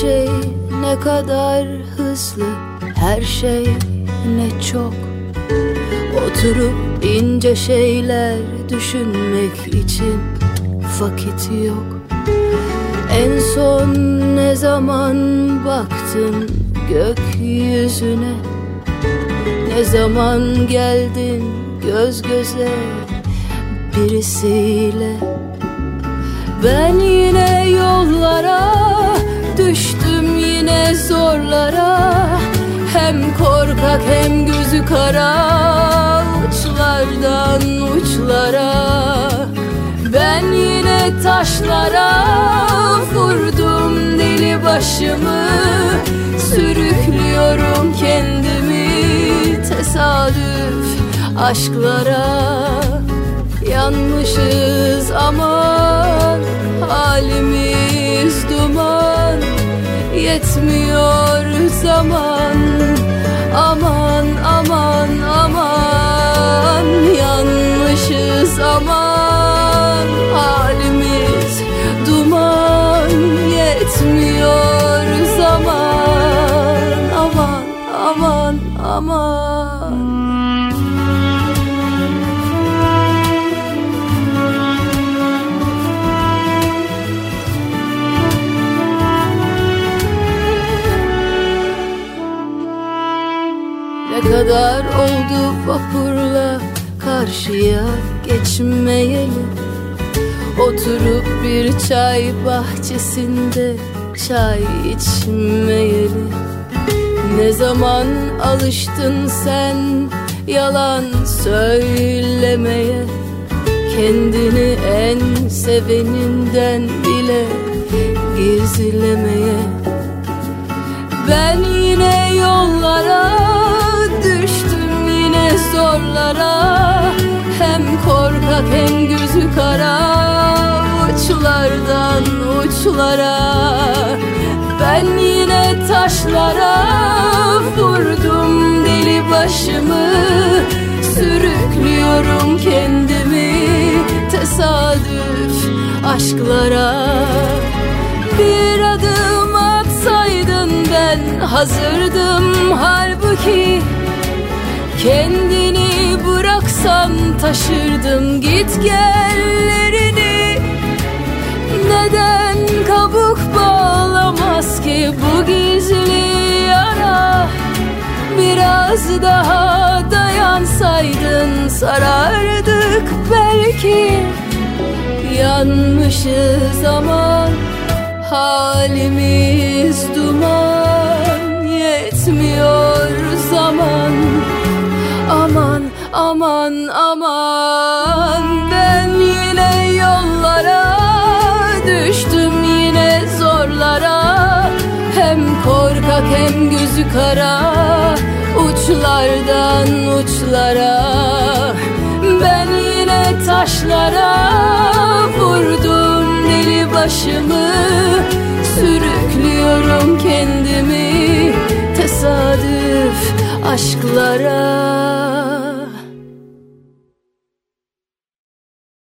şey ne kadar hızlı Her şey ne çok Oturup ince şeyler düşünmek için vakit yok En son ne zaman baktın gökyüzüne Ne zaman geldin göz göze birisiyle Ben yine yollara kara uçlardan uçlara Ben yine taşlara vurdum deli başımı Sürüklüyorum kendimi tesadüf aşklara Yanmışız aman halimiz duman Yetmiyor zaman aman Ne kadar oldu vapurla karşıya geçmeyeli Oturup bir çay bahçesinde çay içmeyeli Ne zaman alıştın sen yalan söylemeye Kendini en seveninden bile gizlemeye Ben yine yollara düştüm yine zorlara Hem korkak hem gözü kara uçlardan uçlara Ben yine taşlara vurdum deli başımı Sürüklüyorum kendimi tesadüf aşklara Bir adım atsaydın ben hazırdım halbuki Kendini bıraksan taşırdım git gellerini biraz daha dayansaydın sarardık belki Yanmışız ama halimiz duman Yetmiyor zaman aman aman aman Ben yine yollara düştüm yine zorlara Hem korkak hem gözü kara uçlardan uçlara Ben yine taşlara vurdum deli başımı Sürüklüyorum kendimi tesadüf aşklara